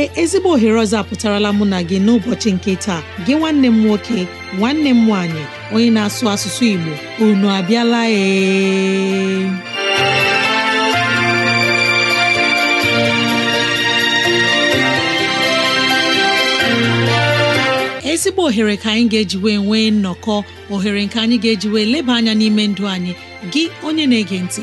ee ezigbo ohere ọzọ apụtarala mụ na gị n'ụbọchị nke taa gị nwanne m nwoke nwanne m nwaanyị onye na-asụ asụsụ Igbo unu abịala ee ezigbo ohere ka anyị ga-ejiwe nwee nnọkọ ohere nke anyị ga-ejiwe leba anya n'ime ndụ anyị gị onye na-ege ntị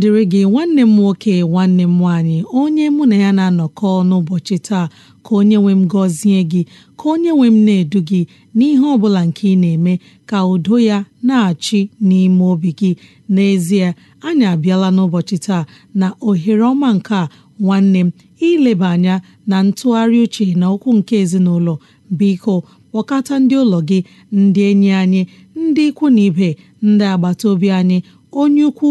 dịrị gị nwanne m nwoke nwanne m nwaanyị onye mụ na ya na-anọkọ n'ụbọchị taa ka onye nwe m gọzie gị ka onye nwe m na-edu gị n'ihe ọ bụla nke ị na-eme ka udo ya na-achị n'ime obi gị n'ezie anyị abịala n'ụbọchị taa na ohere ọma nke a nwanne m ileba anya na ntụgharị uche na okwu nke ezinụlọ biko kpọkọta ndị ụlọ gị ndị enyi anyị ndị ikwu na ibe ndị agbata obi anyị onye ukwu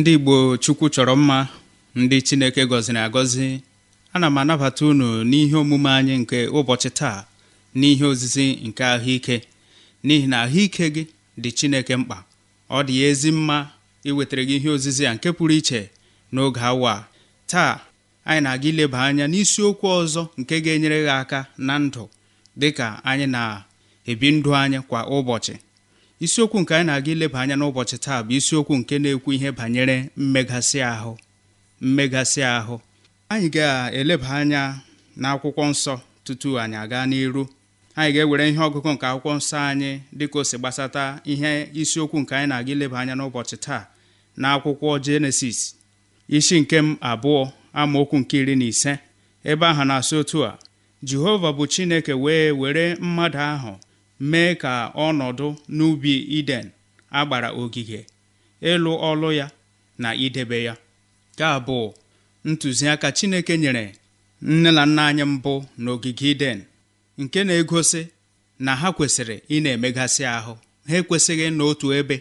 ndị Igbo Chukwu chọrọ mma ndị Chineke gọziri agọzi ana m anabata unu n'ihe omume anyị nke ụbọchị taa n'ihe ozizi nke ahụike n'ihi na ahụike gị dị Chineke mkpa ọ dị ya ezi mma iwetara gị ihe ozizi a nke pụrụ iche n'oge awa taa anyị na-aga ileba anya n'isiokwu ọzọ nke ga-enyere gị aka na ndụ dịka anyị na-ebi ndụ anyị kwa ụbọchị isiokwu nke anyị na-aga ileba anya n'ụbọchị taa bụ isiokwu nke na-ekwu ihe banyere mmegasị ahụ mmegasị ahụ anyị ga-eleba anya n'akwụkwọ nsọ tutu anyị aga n'iru anyị ga-ewere ihe ọgụgụ nke akwụkwọ nsọ anyị dịka o si gbasata ihe isiokwu nke anyị na-aga ileba anya n'ụbọchị taa na akwụkwọ jenesis isi nke m abụọ amaokwu nke iri na ise ebe ahụ na-asị otu a jehova bụ chineke wee were mmadụ ahụ mee ka ọnọdụ n'ubi Iden agbara ogige ịlụ ọlụ ya na idebe ya ka bụ ntụziaka Chineke nyere nne na nna anyị mbụ n'ogige Iden nke na-egosi na ha kwesịrị ị na-emegasị ahụ ha ekwesịghị n'otu ebe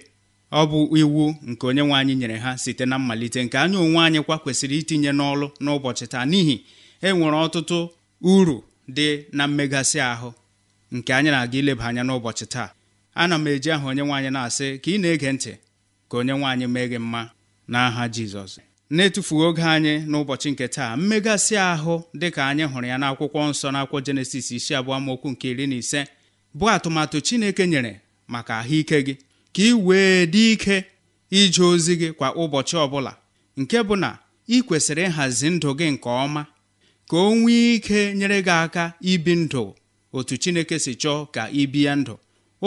ọ bụ iwu nke onye nwe anyị nyere ha site na mmalite nke anya onwe anyị kwa kwesịrị itinye n'ọlụ n'ụbọchị taa n'ihi enwere ọtụtụ uru dị na mmegasị ahụ nke anyị na-aga ileba anya n'ụbọchị taa ana m eji aha onye nwaanyị na-asị ka ị na-ege ntị ka onye nwaanyị mee gị mma n'aha Jizọs na-etufughị oge anyị n'ụbọchị nke taa mmegasị ahụ dị ka anyị hụrụ ya n'akwụkwọ nsọ n'akwụkwọ jenesis isi abụọ mokwu nke iri na ise bụ atụmatụ Chineke nyere maka ahụike gị ka ị wee dị ike ije ozi gị kwa ụbọchị ọbụla nke bụ na ị kwesịrị ịhazi ndụ gị nke ọma ka o nwee ike nyere gị aka ibi ndụ otu chineke si chọọ ka ị bie ndụ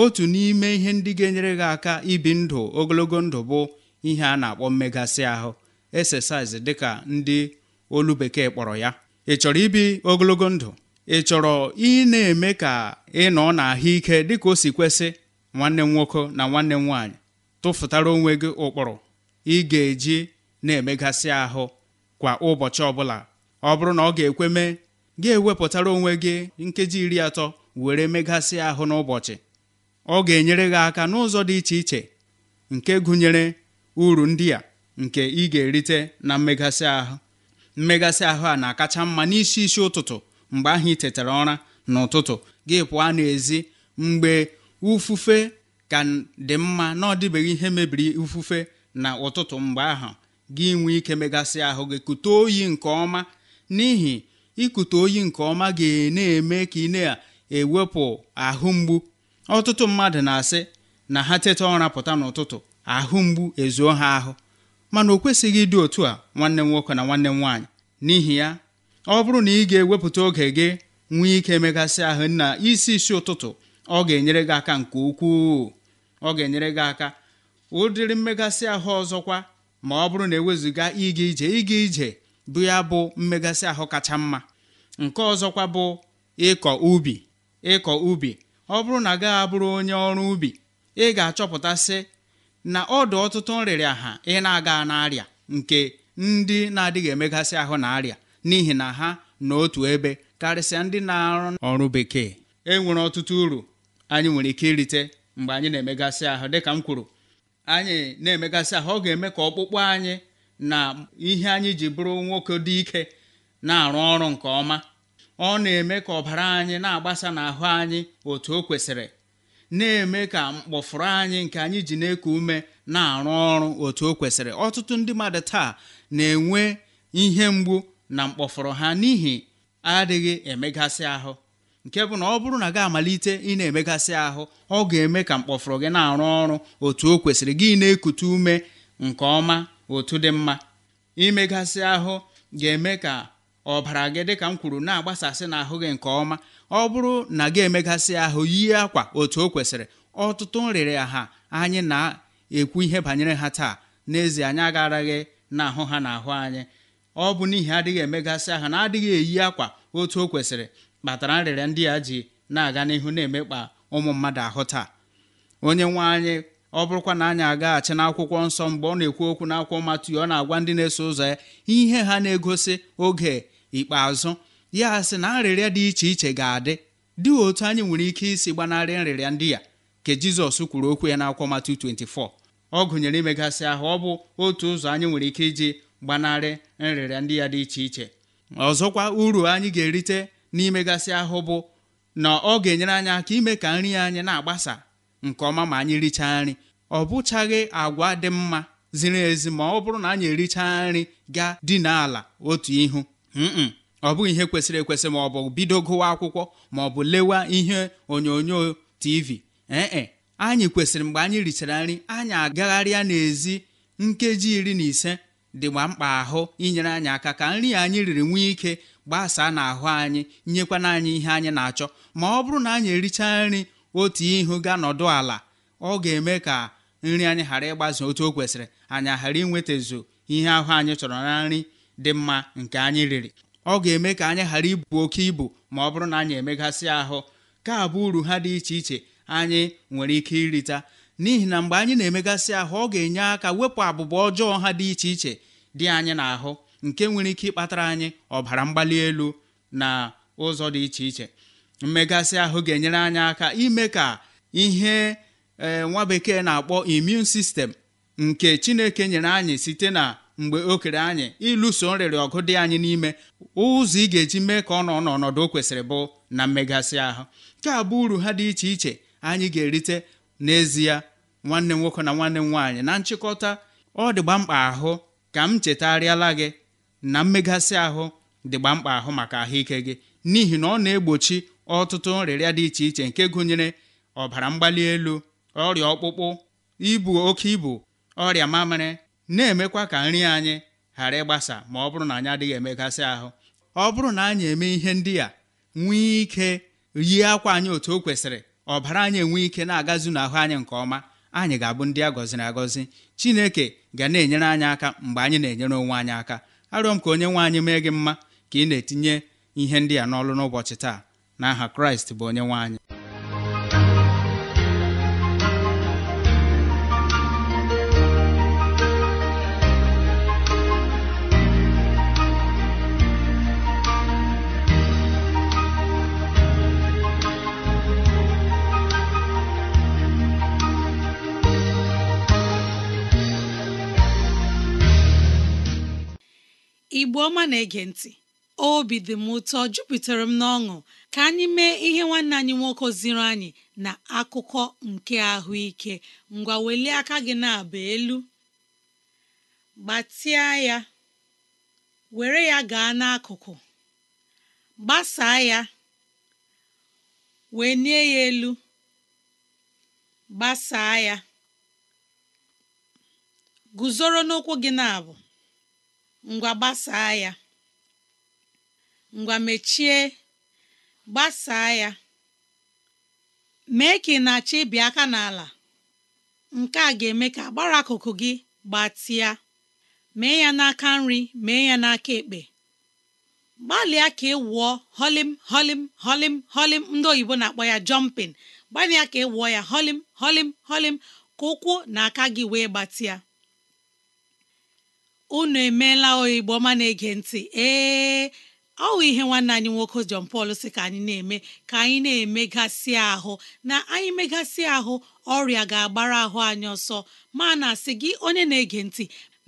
otu n'ime ihe ndị ga-enyere gị aka ibi ndụ ogologo ndụ bụ ihe a na-akpọ mmegasị ahụ exercise dịka ndị olu bekee kpọrọ ya ị chọrọ ibi ogologo ndụ ị chọrọ ị na-eme ka ị nọ ahụike dịka o si kwesị nwanne m nwoke na nwanne m nwaanyị tụfụtara onwe gị ụkpụrụ ị ga-eji na-emegasị ahụ kwa ụbọchị ọbụla ọ bụrụ na ọ ga-ekwe mee ga-ewepụtara onwe gị nkeji iri atọ were megasị ahụ n'ụbọchị ọ ga-enyere gị aka n'ụzọ dị iche iche nke gụnyere uru ndị a nke ị ga-erite na mmegasị ahụ mmegasị ahụ a na-akacha mma n'isi isi ụtụtụ mgbe ahụ ị tetara ụra n'ụtụtụ gị pụọ n'ezi mgbe ufufe ka dị mma na ọ dịbeghị ihe mebiri ufufe na ụtụtụ mgbe ahụ gị nwee ike megasị ahụ gị kute oyi nke ọma n'ihi ikute oyi nke ọma ga-na-eme ka ị na-ewepụ ahụ mgbu ọtụtụ mmadụ na-asị na ha teta ụra pụta n'ụtụtụ ahụ mgbu ezuo ha ahụ mana o kwesịghị ịdị otu a nwanne m nwoke na nwanne m nwaanyị n'ihi ya ọ bụrụ na ị ga-ewepụta oge gị nwee ike megasị ahụ na isi isi ụtụtụ ọ ga-enyere gị aka nke ukwuu ọ ga-enyere gị aka ụdịrị mmegasị ahụ ọzọkwa ma ọ bụrụ na ewezuga ịga ije ịga ije bụ ya bụ mmegasị ahụ kacha mma nke ọzọkwa bụ ịkọ ubi ịkọ ubi ọ bụrụ na gaghị abụrụ onye ọrụ ubi ị ga-achọpụtasị na ọdụ ọtụtụ nrịrịa ha ị na-aga n'arịa nke ndị na-adịghị emegasị ahụ na arịa n'ihi na ha n'otu ebe karịsịa ndị na-arụ ọrụ bekee e nwere ọtụtụ uru anyị nwere ike irite mgbe anyị na-emegasị ahụ dịka m kwuru anyị na-emegasị ahụ ọ ga-eme ka ọkpụkpụ anyị na ihe anyị ji bụrụ nwoke dị ike na-arụ ọrụ nke ọma ọ na-eme ka ọbara anyị na-agbasa n'ahụ anyị otu o kwesịrị na-eme ka mkpọfụrụ anyị nke anyị ji na-eku ume na-arụ ọrụ otu o kwesịrị ọtụtụ ndị mmadụ taa na-enwe ihe mgbu na mkpọfụrụ ha n'ihi adịghị emegasị ahụ nke bụ na ọ bụrụ na gị amalite ị na-emegasị ahụ ọ ga-eme ka mkpọfụrụ gị na-arụ ọrụ otu o kwesịrị gị na-ekute ume nke ọma otu dị mma imegasị ahụ ga-eme ka ọbara gị dịka m kwuru na-agbasasị n'ahụ gị nke ọma ọ bụrụ na gị emegasị ahụ yie akwa otu o kwesịrị ọtụtụ nrịrị ha anyị na-ekwu ihe banyere ha taa n'ezie anyị agaraghị ahụ ha na ahụ anyị ọ bụ n'ihi adịghị emegasị ahụ na adịghị eyi akwa otu o kwesịrị kpatara nrịrịa ndị a ji na-aga n'ihu na-emekpa ụmụ mmadụ ahụ taa onye nwe anyị ọ bụrụkwa na anyị agaghachi n'akwụkwọ nsọ mgbe ọ na-ekwu okwu n'akwụkwọ Matiu ọ na-agwa ndị na-eso ụzọ ya ihe ha na-egosi oge ikpeazụ ya sị na nrịrịa dị iche iche ga-adị dị otu anyị nwere ike isi gbanarị nrịrịa ndị ya ka jizọs kwuru okwu ya n'akwụkwọ Matu 24 ọ gụnyere imegasị ahụ ọ bụ otu ụzọ anyị nwere ike iji gbanarị nrịrịa ndị ya dị iche iche ọzọkwa uru anyị ga-erite n'imegasị ahụ bụ na ọ ga-enyere anyị aka ime ka nri anyị na-agbasa nke ọma ma anyị richaa nri ọ bụchaghị agwa dị mma ziri ezi ma ọ bụrụ na anyị erichaa nri gaa dina ala otu ihu ọ bụghị ihe kwesịrị ekwesị ma ọ bụ bido gụwa akwụkwọ ma ọ bụ lewa ihe onyonyo tv ee anyị kwesịrị mgbe anyị richara nri anyị agagharịa n'ezi nkeji iri na ise dịgba mkpa ahụ inyere anyị aka ka nri anyị riri nwee ike gbasaa n'ahụ anyị nyekwana anyị ihe anyị na-achọ ma ọ bụrụ na anyị ericha nri otu ihu ga nọdụ ala ọ ga-eme ka nri anyị ghara ịgbazi otu o kwesịrị anyị ghara inwetazu ihe ahụ anyị chọrọ na nri dị mma nke anyị riri ọ ga-eme ka anyị ghara ibu oke ibu ma ọ bụrụ na anyị emegasị ahụ ka abụ uru ha dị iche iche anyị nwere ike irita n'ihi na mgbe anyị na-emegasị ahụ ọ ga-enye aka wepụ abụba ọjọọ ha dị iche iche dị anyị n'ahụ nke nwere ike ịkpatara anyị ọbara mgbali elu na ụzọ dị iche iche mmegasị ahụ ga-enyere anyị aka ime ka ihe eh, nwa bekee na-akpọ immune sistem nke chineke nyere anyị site na mgbe o kere anyị ịlụso nrịrị ọgụ dị anyị n'ime ụzọ ị ga-eji mee ka ọ nọ n'ọnọdụ o kwesịrị bụ na mmegasị ahụ nke a bụ uru ha dị iche iche anyị ga-erite n'ezie nwanne m nwoke na nwanne m nwaanyị na nchịkọta ọ dịgba mkpa ahụ ka m chetarịala gị na mmegasị ahụ dịgba mkpa ahụ maka ahụike gị n'ihi na ọ na-egbochi ọtụtụ nrịrịa dị iche iche nke gụnyere ọbara mgbali elu ọrịa ọkpụkpụ ibu oke ibu ọrịa mamịrị na-emekwa ka nri anyị ghara ịgbasa ma ọ bụrụ na anyị adịghị emegasị ahụ ọ bụrụ na anyị eme ihe ndị a nwee ike yie akwa anyị otu o kwesịrị ọbara anyị enwee ike na-agazu n'ahụ anyị nke ọma anyị ga-abụ ndị a gọziri agọzi chineke ga na-enyere anyị aka mgbe anyị na-enyere onwe anyị aka arịọ m ka onye nwe anyị mee gị mma ka ị na-etinye ihe ndị a n'ọlụ n'ụbọchị taa n'aha kraịst bụ onye nwe anyị ọma na-ege ntị obi dị m ụtọ jupụtara m n'ọṅụ ka anyị mee ihe nwanne anyị nwoke ziri anyị na akụkọ nke ahụike ngwa welie aka gị na-aba elu gbatịa ya were ya gaa n'akụkụ gbasaa ya wee nie ya elu gbasaa ya guzoro n'ụkwụ gị na-abụ ngwa gbasaa ya ngwa mechie gbasaa ya mee ka ị na-achọ ịbị aka n'ala nke a ga-eme ka agbara akụkụ gị gbatịa mee ya n'aka nri mee ya n'aka ekpe gbalịa ka ị wụọ holim holim holim holim ndị oyibo na-akpọ ya jọmpin gbalịa ka ị wụọ ya holim holim holim ka ụkwụ na aka gị wee gbatịa unu emeela oigbo ọma na-ege ntị ee ọ bụ ihe nwanne anyị nwoke jon pal si ka anyị na-eme ka anyị na-emegasị ahụ na anyị megasị ahụ ọrịa ga-agbara ahụ anyị ọsọ ma na-asị gị onye na-ege ntị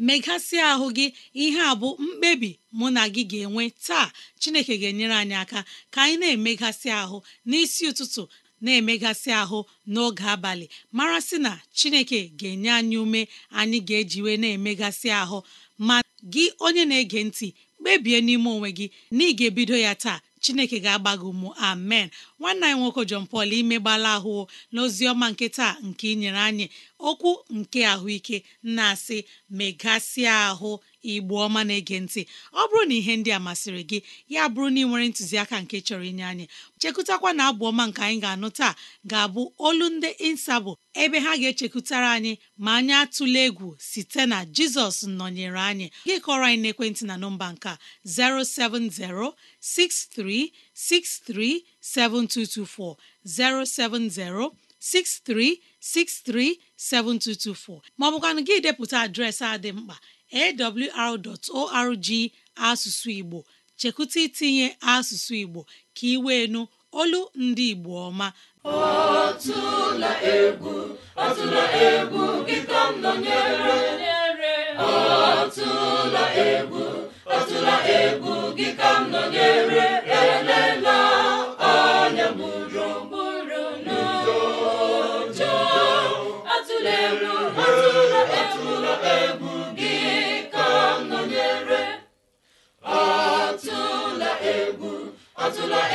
megasị ahụ gị ihe a bụ mkpebi mụ na gị ga-enwe taa Chineke ga-enyere anyị aka ka anyị na-emegasị ahụ n'isi ụtụtụ na-emegasị ahụ n'oge abalị mara sị na Chineke ga-enye anyị ume anyị ga-ejiwe na-emegasị ahụ ma gị onye na-ege ntị kpebie n'ime onwe gị na ị ga-ebido ya taa chineke ga-agba gị ụmụ amen nwanna anyị nwoke John pal imegbala ahụ n'ozi ọma nke taa nke ị nyere anyị okwu nke ahụike na-asị megasịa ahụ igbo ọma na-ege ntị ọ bụrụ na ihe ndị a masịrị gị ya bụrụ na ị nwere ntụziaka nke chọrọ inye anyị chekụtakwa na abụ ọma nke anyị ga-anụ taa ga-abụ olu ndị insabụ ebe ha ga-echekwutara anyị ma anyị atụla egwu site na jizọs nọnyere anyị gị kọrọ anyị n'ekwentị na nọmba nka 07063637224 070 63637224 maọbụkwanụ gị depụta adreesị a dị mkpa awr.org asụsụ Igbo chekwụta itinye asụsụ Igbo ka ị wee nụ olu ndị Igbo ọma ọtụla egwu ọtụla egwu gị ka m nọnyere ọtụla egwu ọtụla egwu gị ka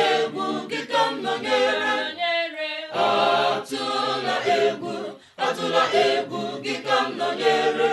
egwu kịta m nọnyere atụla egwu atụla egwu kịta m nọnyere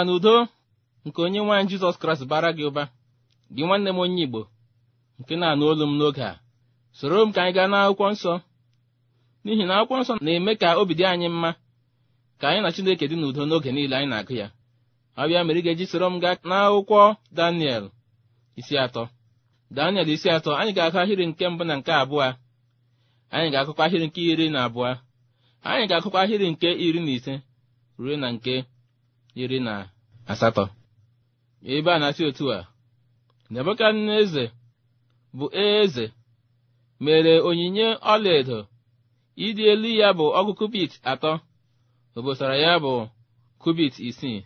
amara na udo nke onye nwaanyị jizọs kraịst bara gị ụba gị nwanne m onye igbo nke na-anụ olu m n'oge a soro m ka anyị gaa n'akwụkwọ nsọ n'ihi na akwụkwọ nsọ na-eme ka obi dị anyị mma ka anyị na chineke dị n'udo n'oge niile anyị na-agụ ya ọbịa mere ị ga-eji soro m gaa n'akwụkwọ daniel isi atọ daniel isi atọ anyị ga-akụ ahịrị nke mbụ na nke abụọ anyị ga-akụkwa ahịrị nke iri na abụọ anyị ga-akụkwa ahịrị nke iri na ise ruo na nke iri na asatọ ebe a na-asị otu a nebukadneze bụ eze mere onyinye ọlaedo ịdị elu ya bụ ọgụ kubit atọ obosara ya bụ kubit isii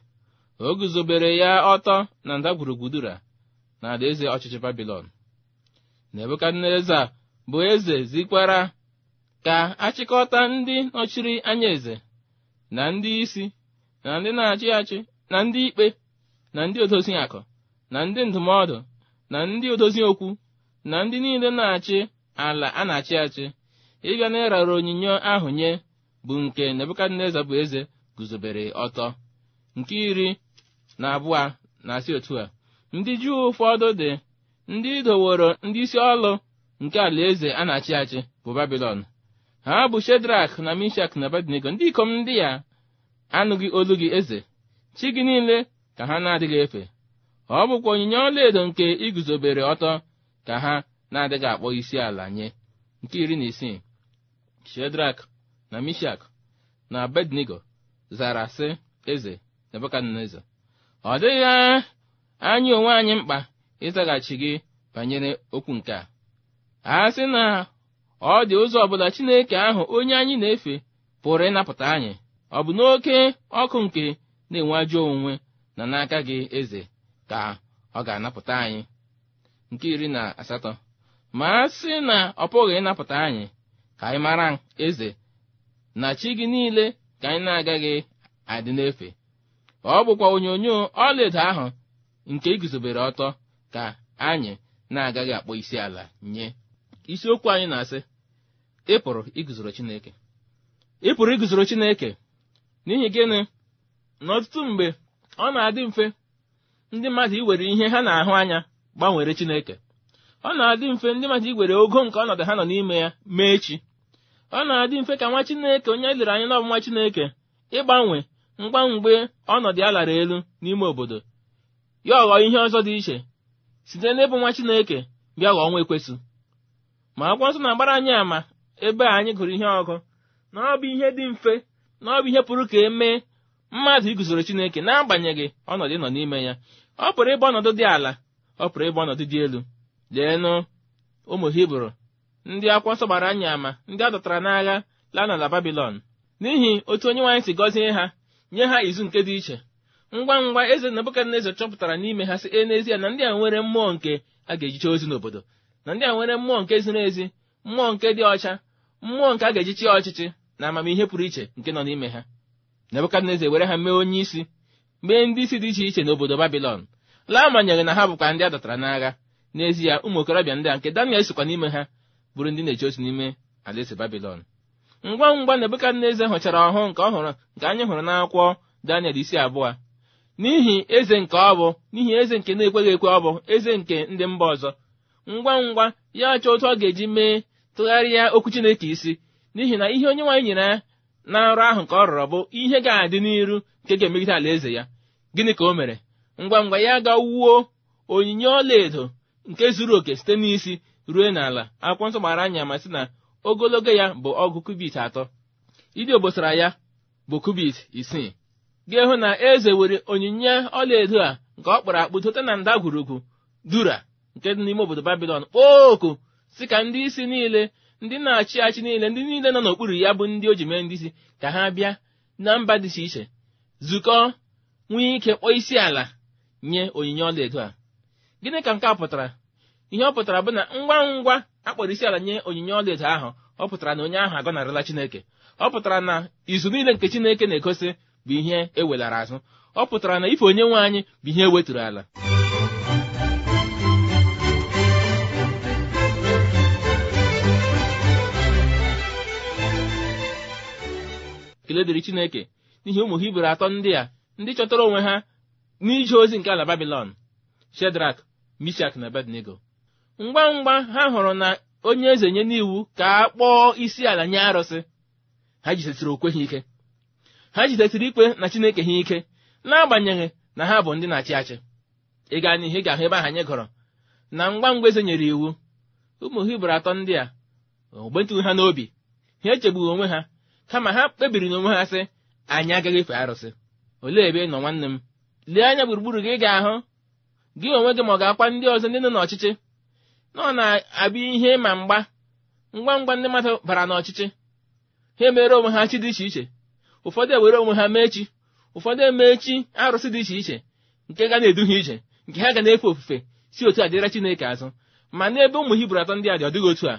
o guzobere ya ọtọ na ndagwurugwu na alaeze ọchịchị babilon a bụ eze zikwara ka achịkọta ndị nọchiri anya eze na ndị isi na ndị na-achị achị na ndị ikpe na ndị odozi akụ na ndị ndụmọdụ na ndị odozi okwu na ndị niile na-achị ala a na-achị achị ịbịa na ịrara onyinye ahụ nye bụ nke Nebukadneza bụ eze guzobere ọtọ nke iri na abụọ na-asị otu a ndị Juu ụfọdụ dị ndị idoworo ndị isi ọlụ nke ala eze a na-achị achị bụ babilon ha bụ Shedrak na Mishak na badinego ndị ikom ndị ya anụghị olu gị eze chi gị niile ka ha na-adịghị efe ọ bụkwa onyinye ọlaedo nke iguzobere ọtọ ka ha na-adịghị akpọ isi ala nye nke iri na isii shedrak na mishak na bednigo zara sị eze nebukadneza ọ dịghị anya onwe anyị mkpa ịzaghachi gị banyere okwu nke a a sị na ọ dị ụzọ ọbụla chineke ahụ onye anyị na-efe pụrụ ịnapụta anyị ọ bụ n'oke ọkụ nke na-enwe ajọ onwe na n'aka gị eze ka ọ ga-anapụta anyị nke iri na asatọ ma a sị na ọ pụghị ịnapụta anyị ka anyị mara eze na chi gị niile ka anyị na-agaghị adị n'efe ọ bụkwa onyonyo ọlaedo ahụ nke iguzobere e ọtọ ka anyị na-agaghị akpọ isi ala nye isiokwu anyị na-asị ịpụrụ iguzoro Chineke ị iguzoro Chineke n'ihi gịnị n'ọtụtụ mgbe ọ na-adị mfe ndị mmadụ iwere ihe ha na-ahụ anya gbanwere Chineke ọ na-adị mfe ndị mmadụ iwere ogo nke ọnọdụ ha nọ n'ime ya mee chi ọ na-adị mfe ka nwa Chineke onye e lere anya nwa Chineke ịgbanwe mgbe ọnọdụ ya lara elu n'ime obodo ya ọghọ ihe ọzọ dị iche site n'ịbụ nwa Chineke bịa ghọọ nwa ekwesị. ma akwụkwọ nsọ na-agbara anyị àmà ebe anyị gụrụ ihe ọgụ na ọ bụ ihe dị mfe na ihe pụrụ ka e mee mmadụ iguzoro chineke na-agbanyeghị ọnọdụ nọ n'ime ya ọ pụrụ ịbụ ọnọdụ dị ala ọ pụrụ ịbụ ọnọdụ dị elu leenụ ụmụ hibru ndị akwụkwọ nsọ gbara ama ndị a dọtara n'agha laa n'ala babilon n'ihi otu onye nwaanyị si gọzie ha nye ha izu nke dị iche ngwa ngwa eze Nebukadneza chọpụtara n'ime ha si e n'ezie na ndị a nwere mmụọ nke a ga-ejiche ozi n'obodo na ndị a nwere mmụọ nke ziri ezi mmụọ nke dị ọcha mmụọ nke a ga-ejichi ọchịchị na amamihe pụrụ iche nke nọ n'ime ha nebukadneza were ha mee onye isi mee ndị isi dị iche iche n'obodo babilọn laa na ha bụkwa ndị a dọtara n'agha n'ezie ụmụ okorobịa ndị a nke daniel sikwa n'ime ha bụrụ ndị na-eche otu n'ime alaeze babilon ngwa ngwa nebukadneza hụchara ọhụụ nke ọ hụrụ nke anyị hụrụ n'akwụkwọ daniel isi abụọ n'ihi eze nke ọ bụ n'ihi eze nke na-ekweghị ekwe ọ bụ eze nke ndị mba ọzọ ngwa ngwa ya chọọ otu ọ ga-eji mee tụgharịa okwu chineke isi n'ihi na ihe onye nwaanyị nyere ya na nrọ ahụ ka ọ rọrọ bụ ihe ga-adị n'iru nke ga-emegide alaeze ya gịnị ka o mere ngwa ngwa ya ga wuo onyinye ọlaedo nke zuru oke site n'isi ruo n'ala akwụkwọ nsọ gbara anya ma sị na ogologo ya bụ ọgụ kubit atọ ịdị obosara ya bụ kubit isii ga-ehụ na eze were onyinye ọlaedo a nke ọ kpọrọ akpụ dote na ndagwurugwu dura nke dị n'ime obodo babilon kpoo oku si ka ndị isi niile ndị na-achị achị niile ndị niile nọ n'okpuru ya bụ ndị o ji ndị isi ka ha bịa na mba dị iche iche zukọ nwee ike kpọọ isi ala nye onyinye ọlaedo a gịnị ka nke a pụtara ihe ọ pụtara bụ na ngwa ngwa akpọrọ isi ala nye onyinye ọlaedo ahụ ọ pụtara na onye ahụ agọnarịla chineke ọ pụtara na izu niile nke chineke na-egosi bụ ihe ewelara azụ ọ pụtara na ife onye nwe anyị bụ ihe e weturu ala ekele dịrị chineke n'ihi ụmụ hibru atọ ndị a ndị chọtara onwe ha n'ije ozi nke ala babilon shedrak mishak na bednego ngwa ngwa ha hụrụ na onye eze nye n'iwu ka a kpọọ isi ala nye arụsị ha jidesiri okwe ha ike ha jidesiri ikpe na chineke ha ike n'agbanyeghị na ha bụ ndị na-achị achị ịga n'ihe ị ga-ahụ ebe ahụ anyị gọrọ na ngwa ngwa eze nyere iwu ụmụ hibru atọ ndị a ogbentụghị ha n'obi ha echegbughị onwe ha kama ha kpebiri n'onwe ha sị anyị agaghị efe arụsị olee ebe ị nọ nwanne m lee anya gburugburu gị ga-ahụ gị onwe gị ma ọ ga-akwa ndị ọzọ ndị nọ n'ọchịchị na na abụ ihe ma mgba ngwa ngwa ndị mmadụ bara n'ọchịchị ha emere onwe ha chi dị iche iche ụfọdụ ewere onwe ha mee chi ụfọdụ emee chi arụsị dị iche iche nke ga na ha iche. nke ha ga na-efe ofufe si otu a dịra Chineke azụ ma n'ebe ụmụ Hibru atọ ndị a dị ọ dịghị otu a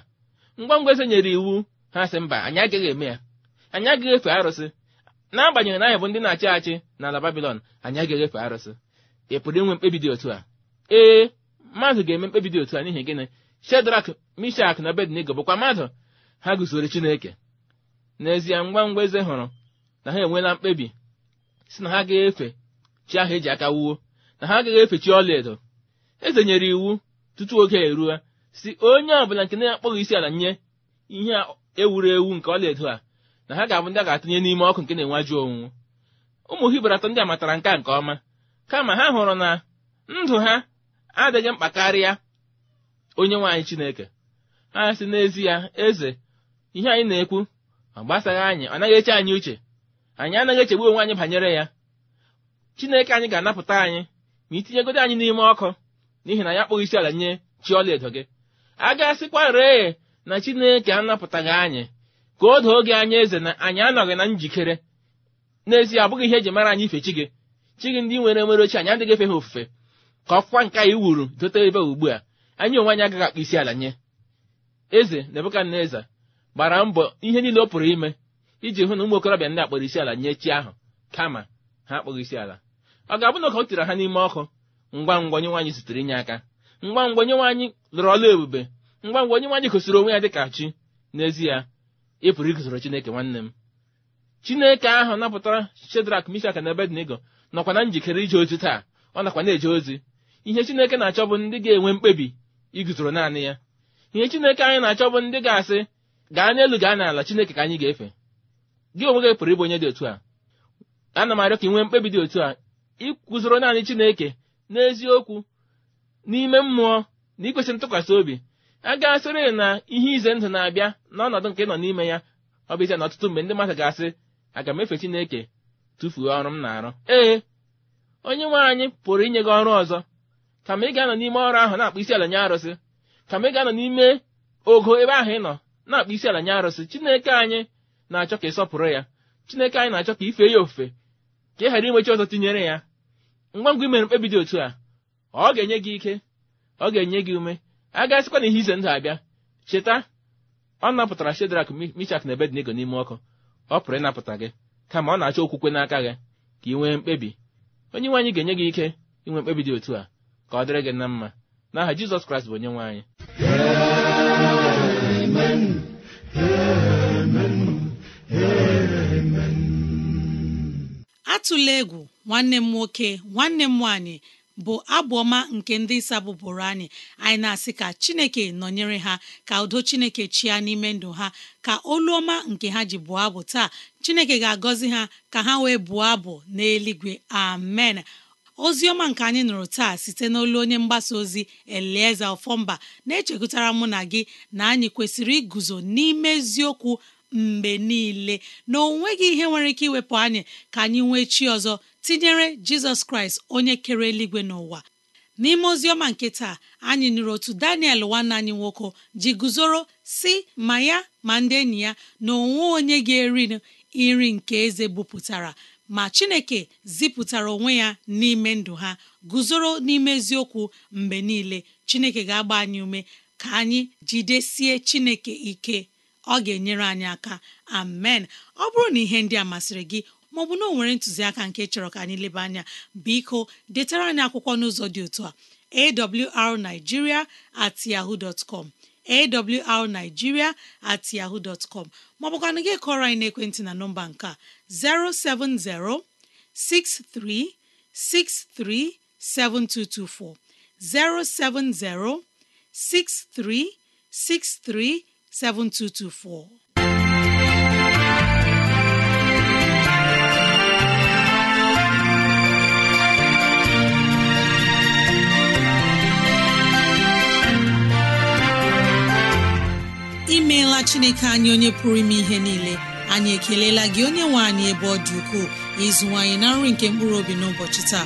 ngwa ngwa eze nyere iwu ha sị mba anyị agaghị eme ya anyị agaghị efe arụsị n'agbanyeghị na anyị bụ ndị na-achị achị n'ala babilon anyị agaghị efe arụsị ị pụrụ inwe mkpebi dị otu a ee mmadụ ga-eme mkpebi dị otu a n'ihi gịnị shedrak mishak na bednigo bụkwa mmadụ ha guzoro chineke n'ezie ngwa ngwa eze hụrụ na ha enweela mkpebi si na ha ga-efe chi ahụ eji aka wuo na ha agaghị efe chi ọlaedo eze nyere iwu tutu oge eruo si onye ọbụla nke na-akpọghị isi ala nye ihe ewuru ewu nke ọlaedo a na ha ga-abụ ndị a ga-atụnye n'ime ọkụ nke na-enwaju onwunwu ụmụ hibru atọ ndị a matara nke a nke ọma kama ha hụrụ na ndụ ha adịghị mkpa karịa onye nwaanyị chineke ha si n'ezie eze ihe anyị na-ekwu ọ gbasaghị anyị ọ naghị eche anyị uche anyị anaghị echegbu onwe anyị banyere ya chineke anyị ga-anapụta anyị ma itinyegodo anyị n'ime ọkụ n'ihi na ya kpọghị isi ala nye chi ọla edo gị a gasịkwa ree na chineke anapụtaghị anyị ka o doo gị anya eze na anyị anọghị na njikere n'ezie abụghị ihe eji mara anyị ife chi gị chi gị ndị nwere nwere ochie anyị adịghị efe ha ofufe ka ọkwa nke anyị wuru dote ebe ugbu a anyị onwe anyị agaghị akpa isi ala nye eze nebukadneza gbara mbọ ihe niile ọ pụrụ ime iji hụ na ụmụ okorobịa ndị akpọrọ isi ala nye chi ahụ kama ha akpọghị isi ala ọ ga-abụ na ọ tiri ha n'ime ọkụ ngwa ngwa onye nwaanyị inye aka ngwa ngwa onye nwaanyị lụrụ ọla ebube ngwa ngwa onye nwaanyị gosiri onwe ya ka chi n'ezie ị pụrụ iguzoro chineke nwanne m chineke ahụ napụtara shedrak mishak na ebednego nọkwa na njikere ije ozi taa ọ nakwa na-eje ozi ihe chineke na-achọ bụ ndị ga-enwe mkpebi iguzoro naanị ya ihe chineke anyị na-achọ bụ ndị ga-asị gaa n'elu gaa n'ala chineke ka anyị ga-efe gị onwe gị pụrụ ịbụ onye dị otu a ana m arịọ ka ị nwee mkpebi dị otu a ịkwụzoro naanị chineke n'eziokwu n'ime mmụọ na ntụkwasị obi a ga-asịrị na ihe ize ndụ na-abịa n'ọnọdụ nke nọ n'ime ya ọ bụ ize na ọtụtụ mgbe ndị mmadụ ga-asị aga m efe Chineke tụfuo ọrụ m na-arụ ee onye nwe anyị pụrụ inye gị ọrụ ọzọ ka ị ga-anọ n'ime ọrụ ahụ na-akpụ isi ala nye arụsị ka ị ga-anọ n'ime ogo ebe ahụ ị nọ na-akpụ isi ala nye arụsị Chineke anyị na-achọ ka ịsọpụrụ ya Chineke anyị na-achọ ka ife ya ofufe ka ị ghara inwechi ọzọ tinyere ya ngwa ngwa imere mkpebi dị otu a ọ ga-enye gị ike ọ ga-enye gị ume agasịkwa na ihe ize ndụ abịa cheta ọ napụtara shedrak michak na ebednego n'ime ọkụ ọ pụrụ ịnapụta gị kama ọ na-achọ okwukwe n'aka gị ka ị nwee mkpebi onye nwe anyị ga-enye gị ike inwe mkpebi dị otu a ka ọ dịrị gị na mma n'aha jizọs kraịst bụ onye nwe anyị atụla egwu nwanne m nwoke nwanne m nwaanyị bụ abụọma nke ndị isa bụrụ anyị anyị na-asị ka chineke nọnyere ha ka udo chineke chịa n'ime ndụ ha ka olu ọma nke ha ji bụọ abụ taa chineke ga-agọzi ha ka ha wee bụọ abụ n'eluigwe amen ozi ọma nke anyị nụrụ taa site n'olu onye mgbasa ozi elieze ofọmba na-echekụtara mụ na gị na anyị kwesịrị iguzo n'ime eziokwu mgbe niile na ọ ihe nwere ike iwepụ anyị ka anyị nwee chi ọzọ tinyere jizọs kraịst onye kere eluigwe n'ụwa n'ime oziọma nke taa anyị nụrụ otu daniel nwanne anyị nwoke ji guzoro si ma ya ma ndị enyi ya na onwe onye ga-eri nri nke eze bupụtara ma chineke zipụtara onwe ya n'ime ndụ ha guzoro n'ime eziokwu mgbe niile chineke ga-agba anyị ume ka anyị jidesie chineke ike ọ ga-enyere anyị aka amen ọ bụrụ na ihe ndị a masịrị gị maọbụ na o nwere ntụziaka nke chọrọ ka anyị leba anya biko detara anyị akwụkwọ n'ụzọ dị otu a awrnigeria at yahoo dot com awrnigeria at yahoo dot com gị kọrọ anyị n'ekwentị na nọmba nke a 07063637224 0706363 7224. imeela chineke anyị onye pụrụ ime ihe niile anyị ekelela gị onye nwe anyị ebe ọ dị ukwuu ịzụwanyị na nri nke mkpụrụ obi n'ụbọchị taa